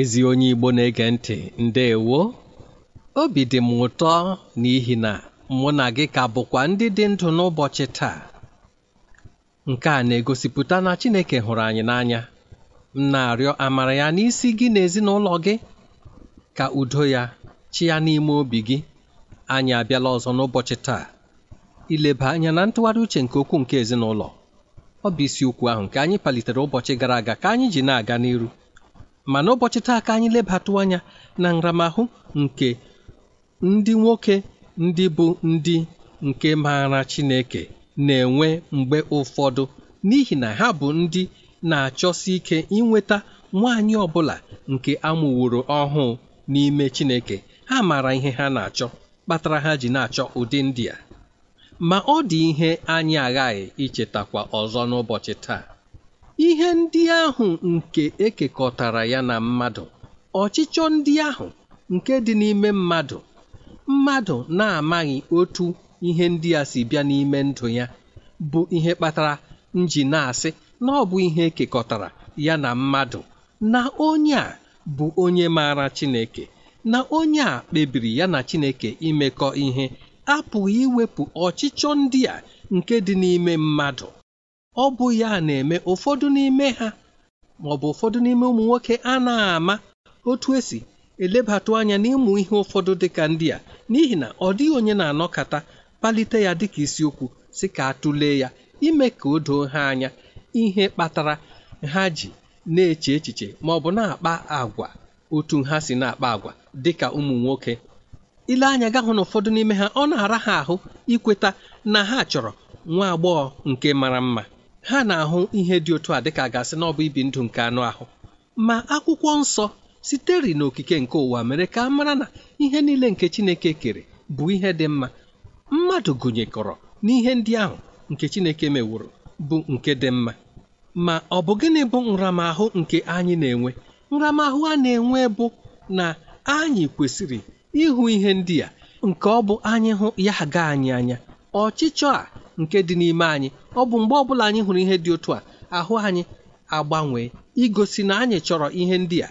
ezi onye igbo na-ege ntị Ndewo, obi dị m ụtọ n'ihi na mụ na gị ka bụkwa ndị dị ndụ n'ụbọchị taa nke a na-egosipụta na Chineke hụrụ anyị n'anya m na-arịọ amara ya n'isi gị na ezinụlọ gị ka udo ya chi ya n'ime obi gị anyị abịala ọzọ n'ụbọchị taa ileba anya na ntụgharị uche nke okwu nke ezinụlọ ọ bụ ukwu ahụ nke anyị palitere ụbọchị gara aga ka anyị ji na-aga n'iru ma n'ụbọchị taa ka anyị lebatụ anya na nramahụ nke ndị nwoke ndị bụ ndị nke maara Chineke na-enwe mgbe ụfọdụ n'ihi na ha bụ ndị na-achọsi ike inweta nwaanyị ọbụla nke amụworo ọhụụ n'ime Chineke ha maara ihe ha na-achọ kpatara ha ji na-achọ ụdị ndị a ma ọ dị ihe anyị aghaghị ichetakwa ọzọ n'ụbọchị taa ihe ndị ahụ nke ekekọtara ya na mmadụ ọchịchọ ndị ahụ nke dị n'ime mmadụ mmadụ na-amaghị otu ihe ndị a si bịa n'ime ndụ ya bụ ihe kpatara nji na-asị na ọ bụ ihe ekekọtara ya na mmadụ na onye a bụ onye maara Chineke na onye a kpebiri ya na Chineke imekọ ihe apụghị iwepụ ọchịchọ ndị a nke dị n'ime mmadụ ọ bụ ya na-eme ụfọdụ n'ime ha ma ọ bụ ụfọdụ n'ime ụmụ nwoke a na-ama otu esi elebatụ anya n'ịmụ ihe ụfọdụ dị ka ndị a n'ihi na ọ dịghị onye na-anọkata kpalite ya dịka isiokwu si ka atụle ya ime ka o doo ha anya ihe kpatara ha ji na-eche echiche ma ọ bụ na-akpa agwa otu ha si na-akpa agwa dịka ụmụ nwoke ile anya ga hụ na ụfọdụ n'ime ha ọ na-ara ha ahụ ikweta na ha chọrọ nwa agbọghọ nke mara mma ha na-ahụ ihe dị otu a dịka gasị na ọ bụ ibi ndụ nke anụ ahụ ma akwụkwọ nsọ sitere n'okike nke ụwa mere ka a mara na ihe niile nke Chineke kere bụ ihe dị mma mmadụ gụnyekọrọ n'ihe ndị ahụ nke Chineke meworo bụ nke dị mma ma ọ bụ gịnị bụ nramahụ nke anyị na-enwe nramahụ a na-enwe bụ na anyị kwesịrị ịhụ ihe ndị a nke ọ bụ anyị hụ ya ga anyị anya ọchịchọ a nke dị n'ime anyị ọ bụ mgbe ọbụla anyị hụrụ ihe dị otu a ahụ anyị agbanwee igosi na anyị chọrọ ihe ndị a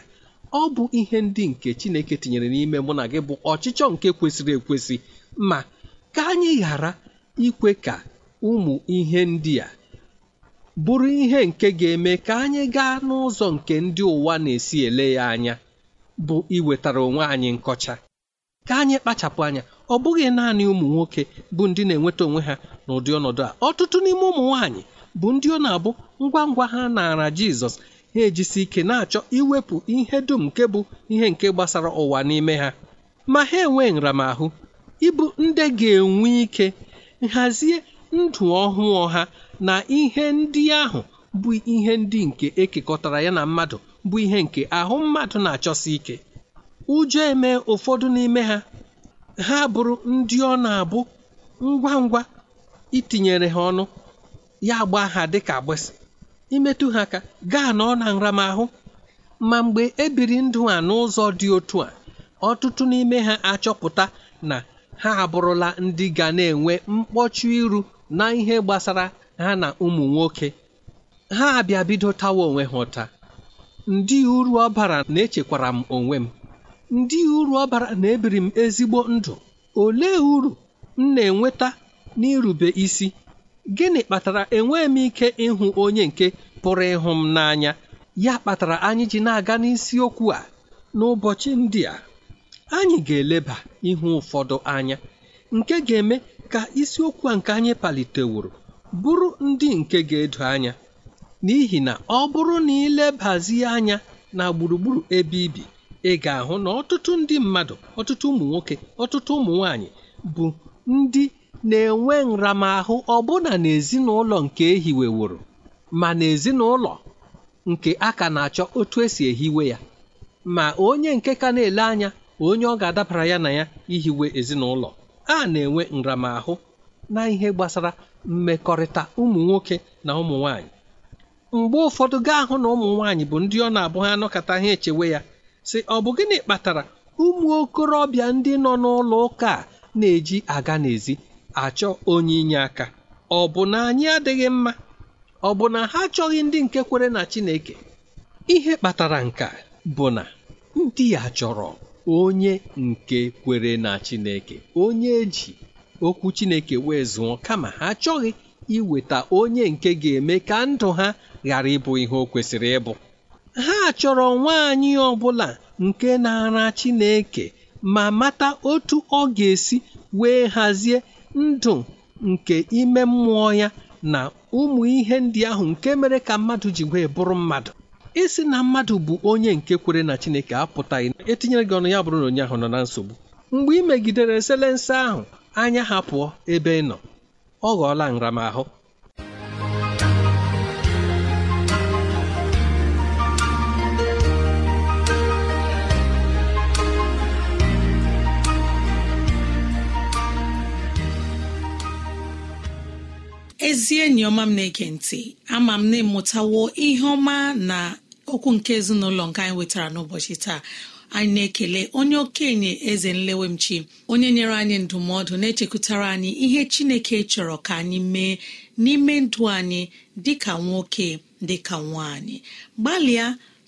ọ bụ ihe ndị nke Chineke tinyere n'ime mụ na gị bụ ọchịchọ nke kwesịrị ekwesị ma ka anyị ghara ikwe ka ụmụ ihe ndị a bụrụ ihe nke ga-eme ka anyị gaa n'ụzọ nke ndị ụwa na-esi ele ya anya bụ iwetara onwe anyị nkọcha ka anyị kpachapụ anya ọ bụghị naanị ụmụ nwoke bụ ndị na-enweta onwe ha n'ụdị ọnọdụ a ọtụtụ n'ime ụmụ nwaanyị bụ ndị ọ na-abụ ngwa ngwa ha naara Jizọs ha ejisi ike na-achọ iwepụ ihe dum nke bụ ihe nke gbasara ụwa n'ime ha ma ha enwee nramahụ ịbụ ndị ga-enwe ike nhazie ndụ ọhụụ ha na ihe ndị ahụ bụ ihe ndị nke ekekọtara ya na mmadụ bụ ihe nke ahụ mmadụ na-achọsi ike ụjọ eme ụfọdụ n'ime ha ha bụrụ ndị ọ na-abụ ngwa ngwa itinyere ha ọnụ ya gba ha dịka agbịsị imetụ ha ka gaa na ọ na nramahụ ma mgbe ebiri ndụ a n'ụzọ dị otu a ọtụtụ n'ime ha achọpụta na ha abụrụla ndị ga na-enwe mkpọchụ iru na ihe gbasara ha na ụmụ nwoke ha abịa bido tawa onwe ha ụta ndị uru ọ bara na-echekwara m onwe m ndị uru ọ bara na ebiri m ezigbo ndụ ole uru m na-enweta n'irube isi gịnị kpatara enweghị m ike ịhụ onye nke pụrụ ịhụ m n'anya ya kpatara anyị ji na-aga n'isiokwu a n'ụbọchị ndị a anyị ga-eleba ihu ụfọdụ anya nke ga-eme ka isiokwu a nke anyị paliteworo bụrụ ndị nke ga-edo anya n'ihi na ọ bụrụ na ilebazie anya na gburugburu ebe ibi ị ga-ahụ na ọtụtụ ndị mmadụ ọtụtụ ụmụ nwoke ọtụtụ ụmụ nwaanyị bụ ndị na-enwe nramahụ ọbụna n'ezinụlọ nke ehiweworo ma n'ezinụlọ nke a ka na-achọ otu esi ehiwe ya ma onye nke ka na-ele anya onye ọ ga-adabara ya na ya ihiwe ezinụlọ a na-enwe nramahụ na ihe gbasara mmekọrịta ụmụ nwoke na ụmụ nwaanyị mgbe ụfọdụ gaa hụ na ụmụ nwaanyị bụ ndị ọ na-abụ ha anọkọta ha echewe ya sị ọ bụ gịnị kpatara ụmụ okorobịa ndị nọ n'ụlọ ụka a na-eji aga n'ezi achọ onye inye aka ọ bụ na anyị adịghị mma ọ bụ na ha achọghị ndị nke kwere na Chineke ihe kpatara nka bụ na ndị ya chọrọ onye nke kwere na Chineke onye eji okwu Chineke wee zụọ kama ha achọghị iweta onye nke ga-eme ka ndụ ha ghara ịbụ ihe o kwesịrị ịbụ ha chọrọ nwaanyị ọbụla nke na-ara Chineke ma mata otu ọ ga-esi wee hazie ndụ nke ime mmụọ ya na ụmụ ihe ndị ahụ nke mere ka mmadụ ji wee bụrụ mmadụ isi na mmadụ bụ onye nke kwere na Chineke apụtaghị etinyere gị ọnụ ya bụrụ na onye ahụ nọ na nsogbu mgbe ị megidere eselense ahụ anya ha pụọ ebe ị nọ ọ ghọọla nramahụ ezie enyi ọma m na-ege ntị ama m na ịmụtawo ihe ọma na okwu nke ezinụlọ nke anyị wetara n'ụbọchị taa anyị na-ekele onye okenye eze nlewemchi onye nyere anyị ndụmọdụ na-echekwutara anyị ihe chineke chọrọ ka anyị mee n'ime ndụ anyị ka nwoke dịka nwaanyị gbalịa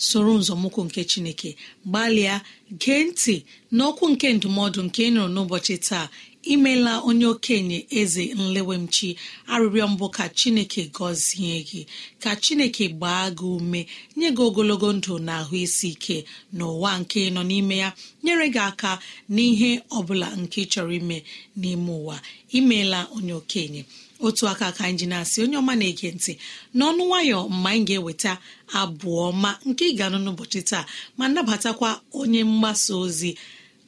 soro nzọmụkwụ nke chineke gbalịa gee ntị n'okwu nke ndụmọdụ nke ị nụrụ n'ụbọchị taa imela onye okenye eze nlewemchi arịrịọ mbụ ka chineke gọzie gị ka chineke gbaa gị ume nye gị ogologo ndụ na ahụ isi ike n'ụwa nke nọ n'ime ya nyere gị aka n'ihe ọ bụla nke chọrọ ime n'ime ụwa imeela onye okenye otu aka ka anyị ji na-asị onye ọma na-ege ntị n'ọnụ nwayọ mma anyị ga-eweta abụọ ma nke ị ga-anụ n'ụbọchị taa ma nabatakwa onye mgbasa ozi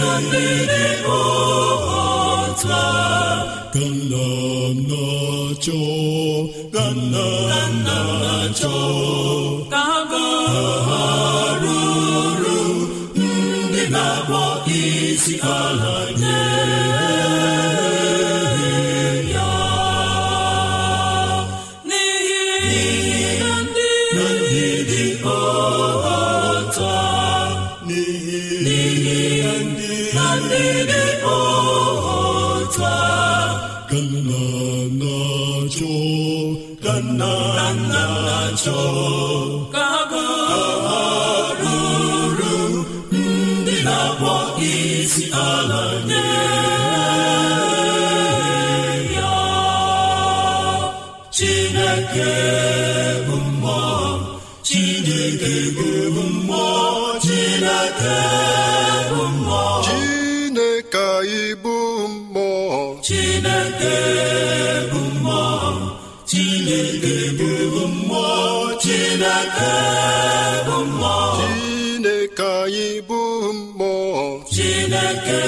na ndị dị ọhata ka na ka ha ndị na-akpọ isi ala chineke ibu mmụọ chineke bụ mmụọ chineke bụ mmụọ chineke bụ hụ! chineke anyị bụ mmụọ chineke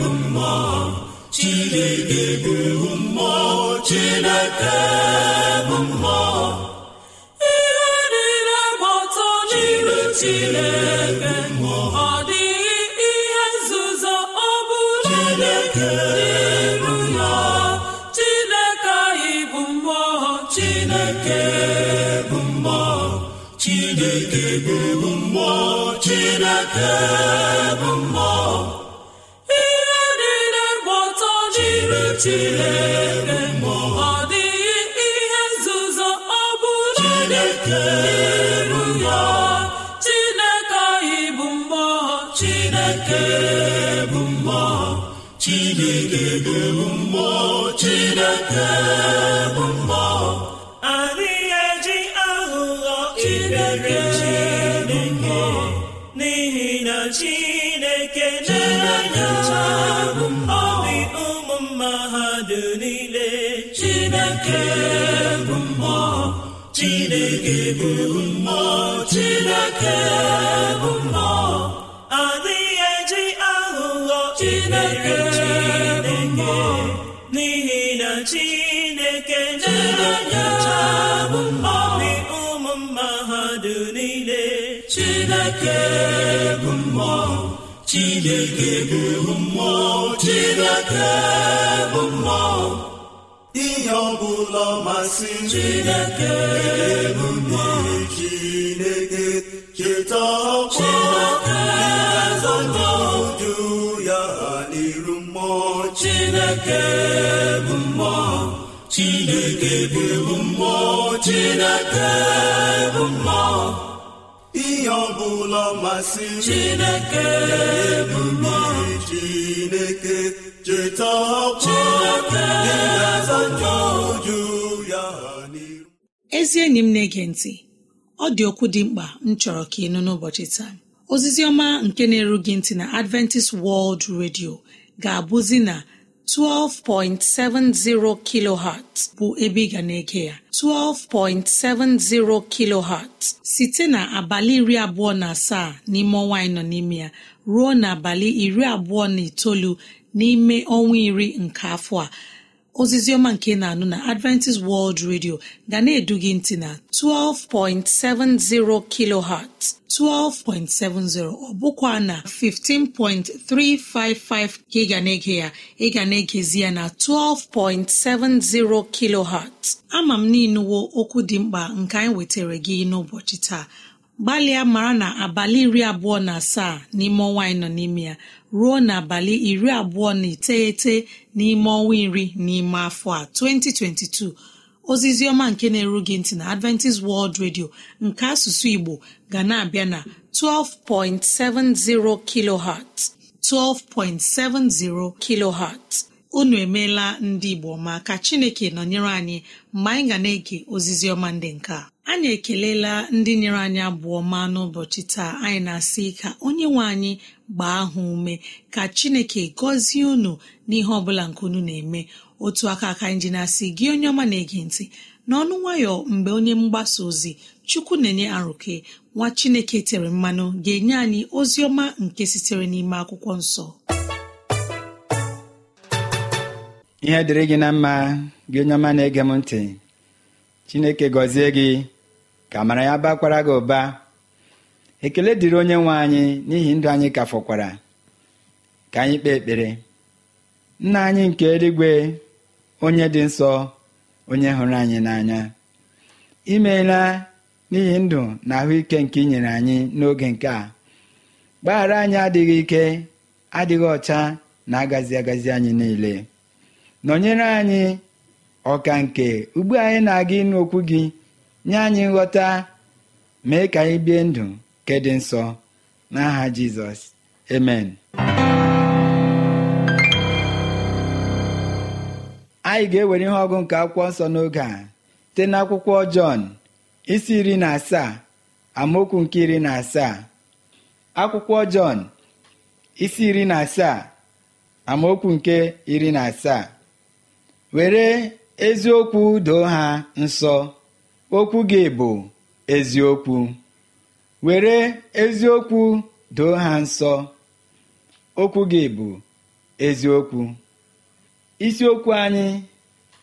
bụ mmụọ chineke bụ mmụọ chineke ihe niile gbọtọ jiri Chineke ọ dịghị ihe nzuzo ọ bụla ya Chineke anyị bụ Chineke bụ mmụọ Chineke bụ mmụọ Chineke bụ mmụọ chineke bụ mmụọ chineke bụ mmụọ adịghị eji aghụghọ chineke bụ mmụọ n'ihi na chineke na-enyocha bụ mmụọ ụmụ mma ha dị niile chineke bụ mmụọ chineke bụ mmụọ chineke bụ mmụọ ihe ọbụla masịrị Chineke bụ mmụọ Chineke cheta ọkwa ụjụ ya n'iru mmụọ Chineke bụ mmụọ Chineke bụ mmụọ Chineke bụ mmụọ ihe ọbụla masịrị Chineke bụ mmụọ Chineke cheta ezi enyi m na-ege ntị ọ dị okwu dị mkpa m chọrọ ka ị nụ n'ụbọchị taa ozizi ọma nke na-eru gị ntị na adventist world radio ga-abụzi na 12.70 kilohertz bụ ebe ị ga na-ege ya 12.70 kilohertz site na abalị iri abụọ na asaa n'ime ọnwa anyị nọ n'ime ya ruo n'abalị iri abụọ na itoolu n'ime ọnwa iri nke afọ a zioma nke na-anụ na adventist world radio ga na-edu gị ntị na 12.70 kilohertz 12.70 ọ bụkwa na 15.355 ka ị ga na-ege ya ị ga na-egezi ya na 12.70 kilohertz ama m n'inuwo okwu dị mkpa nke anyị wetara gị n'ụbọchị taa gbalịa mara na abalị iri abụọ na asaa n'ime ọnwa anyị nọ n'ime ya ruo n'abalị iri abụọ na iteghete n'ime ọnwa iri n'ime afọ a 2022 ozizi ọma nke na-eru gị ntị na Adventist World Radio nke asụsụ Igbo ga na-abịa na 12.70 kilohertz 12.70 kilohertz unu emeela ndị Igbo ma ka Chineke nọnyere anyị mgbe anyị ga na-ege ozizi ọma ndị nke a anyị ekelela ndị nyere anyị abụọ ma n'ụbọchị taa anyị na-asị ka onye nwe anyị gbaa ha ume ka chineke gọzie unu n'ihe ọbụla nke unu na-eme otu aka aka anyị ji na-asị gị onye ọma na-ege ntị n'ọnụ nwayọ mgbe onye mgbasa ozi chukwu na-enye arụke nwa chineke tere mmanụ ga-enye anyị ozi ọma nke sitere n'ime akwụkwọ nsọ ihe dịrị gị na mma gị onye ọma na-ege m ntị chineke gọzie gị ka amara ya bakwara gị ụba ekele dịrị onye nwe anyị n'ihi ndụ anyị ka fọkwara ka anyị kpee ekpere nna anyị nke eluigwe onye dị nsọ onye hụrụ anyị n'anya imeela n'ihi ndụ na ahụike nke inyere anyị n'oge nke a gbaghara anyị adịghị ike adịghị ọcha na agazi agazi anyị niile nọnyere anyị ọka nke ugbu anyị na-aga ịnụ okwu gị nye anyị nghọta mee ka anyị bie ndụ nke dị nsọ n'aha jizọs amen anyị ga-ewere ihe ọgụ nke akwụkwọ nsọ n'oge a site n'akwụkwọ jọn isi iri na asaa amaokwu nke iri na asaa akwụkwọ jọn isi iri na asaa amaokwu nke iri na asaa were eziokwu doo ha nsọ okwu bụ eziokwu were eziokwu doo ha nsọ okwu gị bụ eziokwu isiokwu anyị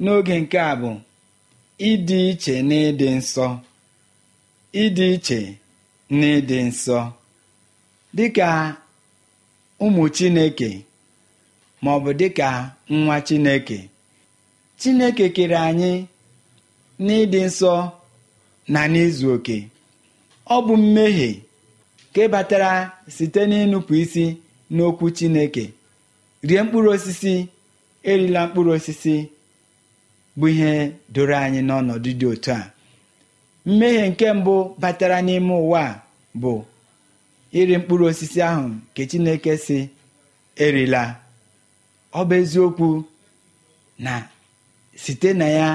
n'oge nke a bụ ịdị iche na ịdị nsọ ịdị iche na ịdị nsọ ka ụmụ chineke dị dịka nwa chineke chineke kere anyị n'ịdị nsọ na n'izu oke ọ bụ mmehie nke batara site n'ịnụpụ isi n'okwu chineke rie mkpụrụ osisi erila mkpụrụ osisi bụ ihe doro anyị n'ọnọdụ dị otu a mmehie nke mbụ batara n'ime ụwa bụ iri mkpụrụ osisi ahụ nke chineke si erila ọ bụ eziokwu na site na ya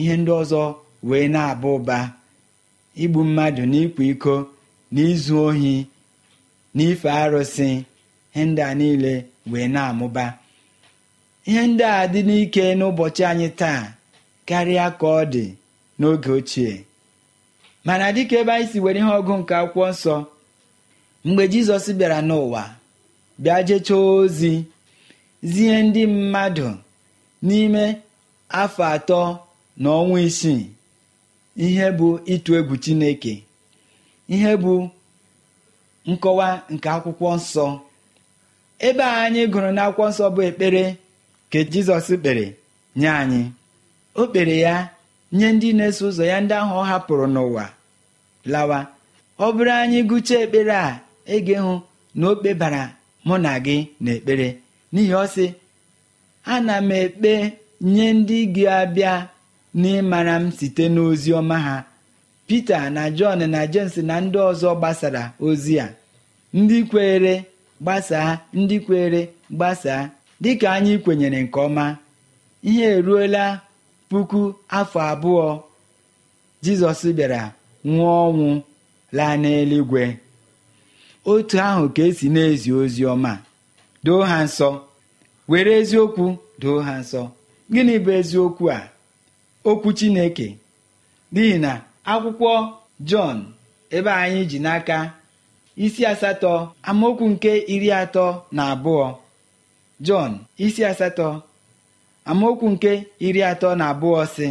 ihe ndị ọzọ wee na-aba ụba igbu mmadụ n'ịkwa iko n'izu ohi n'ife arụsị ihe ndị a niile wee na-amụba ihe ndị a dị n'ike n'ụbọchị anyị taa karịa ka ọ dị n'oge ochie mana dịka ebe anyị si were ihe ọgụ nke akwụkwọ nsọ mgbe jizọs bịara n'ụwa bịa jechaa ozi zie ndị mmadụ n'ime afọ atọ na ọnwa isii ihe bụ ịtụ egwu chineke ihe bụ nkọwa nke akwụkwọ nsọ ebe a anyị gụrụ n'akwụkwọ nsọ bụ ekpere ka jizọs kpere nye anyị o kpere ya nye ndị na-eso ụzọ ya ndị ahụ ọ hapụrụ n'ụwa lawa ọ bụrụ anyị gụchaa ekpere a ege hụ na o kpebara mụ na gị n'ekpere n'ihi ọ sị ana m ekpe nye ndị gị abịa n'ịmara m site n'ozi ọma ha Pita na Jọn na James na ndị ọzọ gbasara ozi a ndị kweere gbasaa ndị kwere gbasaa dịka anyị kwenyere nke ọma ihe eruola puku afọ abụọ Jizọs bịara nwụọ ọnwụ laa n'eluigwe otu ahụ ka esi na-ezi ozi ọma doo ha nsọ were eziokwu doo ha nsọ gịnị bụ eziokwu a okwu chineke n'ihi na akwụkwọ jọn ebe anyị ji n'aka isi asatọ amaokwu nke iri atọ na abụọ jọn isi asatọ amaokwu nke iri atọ na abụọ sị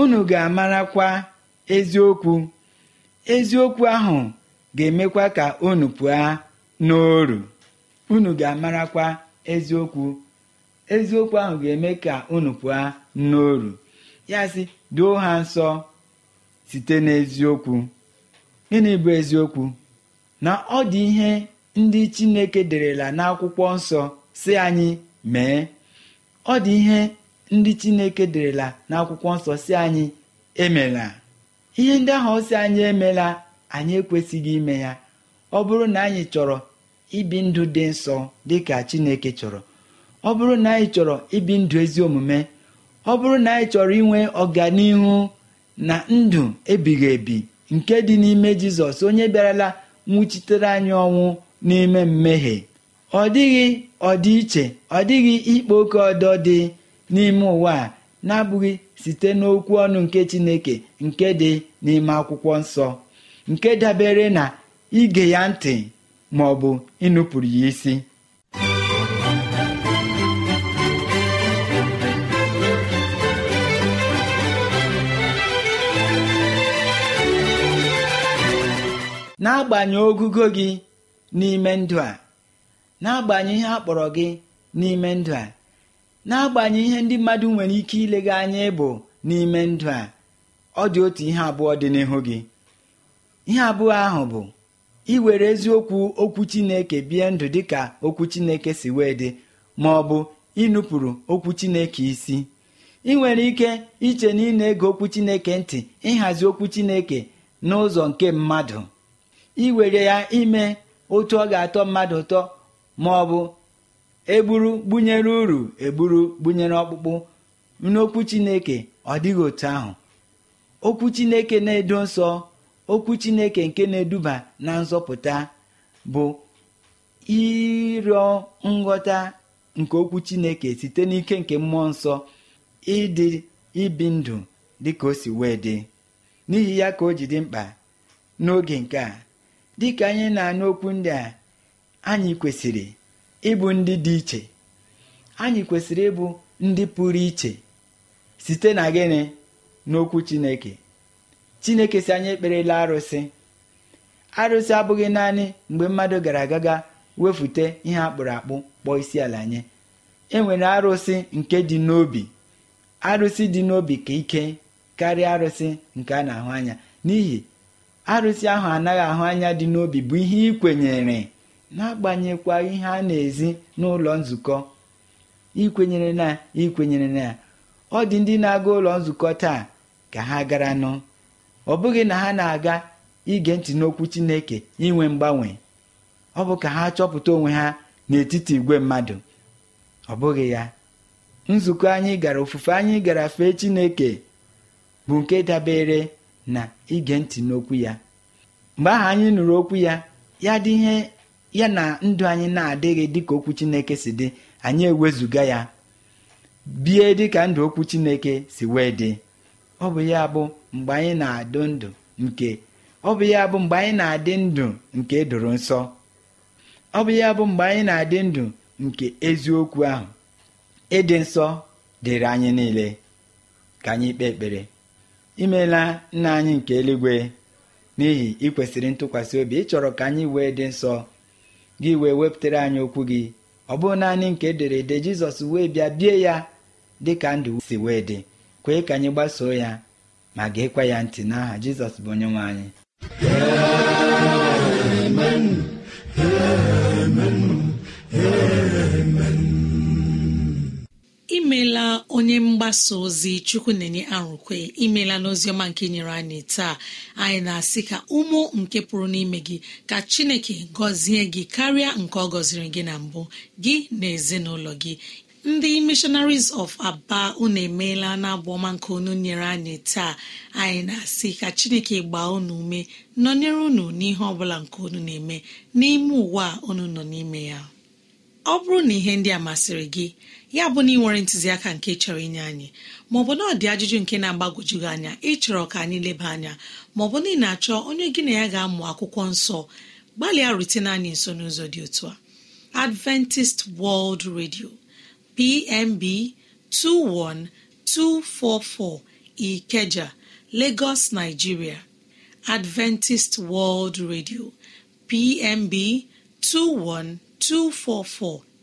unu ga-amarakwa eziokwu eziokwu ahụ ga-emekwa ka unu pụọ n'oru unu ga-amarakwa eziokwu eziokwu ahụ ga-eme ka unu pụọ n'oru ya sị duo ha nsọ site n'eziokwu gịnị bụ eziokwu na ọ dị ihe ndị chineke derela n'akwụkwọ nsọ si anyị mee ọ dị ihe ndị chineke derela n'akwụkwọ nsọ si anyị emela ihe ndị ahụ si anyị emela anyị ekwesịghị ime ya ọ bụrụ na anyị chọrọ ibi ndụ dị nsọ dị chineke chọrọ ọ bụrụ na anyị chọrọ ibi ndụ ezi omume ọ bụrụ na anyị chọrọ inwe ọganihu na ndụ ebighị ebi nke dị n'ime jizọs onye bịarala nwụchitere anyị ọnwụ n'ime mmehie ọ dịghị iche, ọ dịghị ikpo oke ọdọ dị n'ime ụwa a na-abụghị site n'okwu ọnụ nke chineke nke dị n'ime akwụkwọ nsọ nke dabere na ige ya ntị ma ọ bụ ịnụpụrụ ya isi n'agbanyeghị ogugo gị n'ime ndụ a n'agbanyeghị ihe a kpọrọ gị n'ime ndụ a na-agbanye ihe ndị mmadụ nwere ike ilega anya ịbụ n'ime ndụ a ọ dị otu ihe abụọ dị n'ihu gị ihe abụọ ahụ bụ iwere eziokwu okwu chineke bie ndụ dị ka okwu chineke si wee dị ma ọ bụ ịnụpụrụ okwu chineke isi ị nwere ike iche na ị na-ege okwu chineke ntị ịhazi okwu chineke n'ụzọ nke mmadụ iwere ya ime otu ọ ga-atọ mmadụ ụtọ ma ọ bụ egburu gbunyere uru egburu gbunyere ọkpụkpụ n'okwu chineke ọ dịghị otu ahụ okwu chineke na-edo nsọ okwu chineke nke na-eduba na nzọpụta bụ ịrịọ nghọta nke okwu chineke site n'ike nke mmụọ nsọ ịdị ibi ndụ dịka o si wee dị n'ihi ya ka o ji dị mkpa n'oge nke a dịka anyị na-anụ okwu ndị a anyị kwesịrị ịbụ ndị dị iche anyị kwesịrị ịbụ ndị pụrụ iche site na gịnị n'okwu chineke chineke si anyị ekperela arụsị arụsị abụghị naanị mgbe mmadụ gara agaga wefute ihe akpụrụ akpụ kpọọ isi ala nye e nwere arụsị nke dị n'obi arụsị dị n'obi ka ike karịa arụsị nke a na-ahụ anya n'ihi arụsị ahụ anaghị ahụ anya dị n'obi bụ ihe ị kwenyere agbanyekwa ihe a na-ezi n'ụlọ nzukọ ikwenyere na ikwenyere na ọ dị ndị na-aga ụlọ nzukọ taa ka ha gara nụ ọ bụghị na ha na-aga ige ntị n'okwu Chineke inwe mgbanwe ọ bụ ka ha chọpụta onwe ha n'etiti igwe mmadụ ọ bụghị ya nzukọ anyị gara ofufe anyị gara fee Chineke bụ nke dabere na ige ntị n'okwu ya mgbe ahụ anyị nụrụ okwu ya ya dị ihe ya na ndụ anyị na-adịghị dịka okwu chineke si dị anyị ewezuga ya bie dịka ndụ okwu chineke si wee dị ọ bụ ya bụ mgbe anyị na-adụ ndụ nke ọ bụ ya bụ mgbe anyị na-adị ndụ nke nsọ ọ bụ ya bụ mgbe anyị na-adị ndụ nke eziokwu ahụ ịdị nsọ dịrị anyị niile ka anyị kpee ekpere imeela nna anyị nke eluigwe n'ihi ikwesịrị ntụkwasị obi ịchọrọ ka anyị wee dị nsọ gị wee wepụtara anyị okwu gị ọ bụ naanị nke edere ede jizọs wee bịa bie ya dị ka ndụ si wee dị kwee ka anyị gbasoo ya ma geekwa ya ntị n'aha jizọs bụ onye nwe anyị onye mgbasa ozi chukwu na-enye arụkwe imela n'oziọma nke nyere anyị taa anyị na-asị ka ụmụ nke pụrụ n'ime gị ka chineke gọzie gị karịa nke ọ gọziri gị na mbụ gị na ezinụlọ gị ndị mishonaris of aba unu emeela na ọma nke unu nyere anyị taa anyị na-asị ka chineke gbaa unu ume nọnyere unu n'ihe ọbụla nke unu na-eme n'ime ụwa unu nọ n'ime ya ọ bụrụ na ihe ndị a masịrị gị ya bụ na ị nwere ntụziaka nke chọrọ inye anyị maọbụ na ọ dị ajụjụ nke na-agbagojugị anya ịchọrọ ka anyị leba anya maọbụ na ị na-achọ onye gị na ya ga-amụ akwụkwọ nsọ gbalịa rutene anyị nso n'ụzọ dị otu a Adventist World Radio PMB 21244 Ikeja Lagos Nigeria Adventist World Radio PMB 21244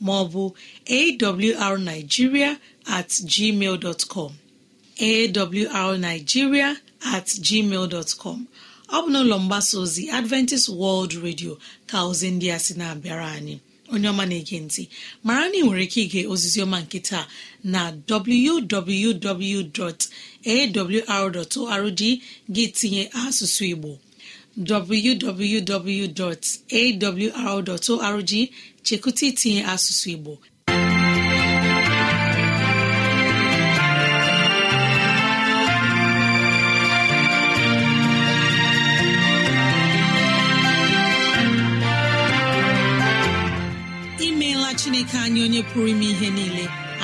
maọbụ arigiria at gmail com arigiria at gmail com ọ bụ n'ụlọ mgbasa ozi adventist world radio ka ozi ndị a sị na-abịara anyị onye ọma na-ege ntị mara na ị nwere ike ige ọma nkịta na www.awr.org gị tinye asụsụ igbo www.awr.org chekwụta itinye asụsụ igbo imeela chineke anyị onye pụrụ ime ihe niile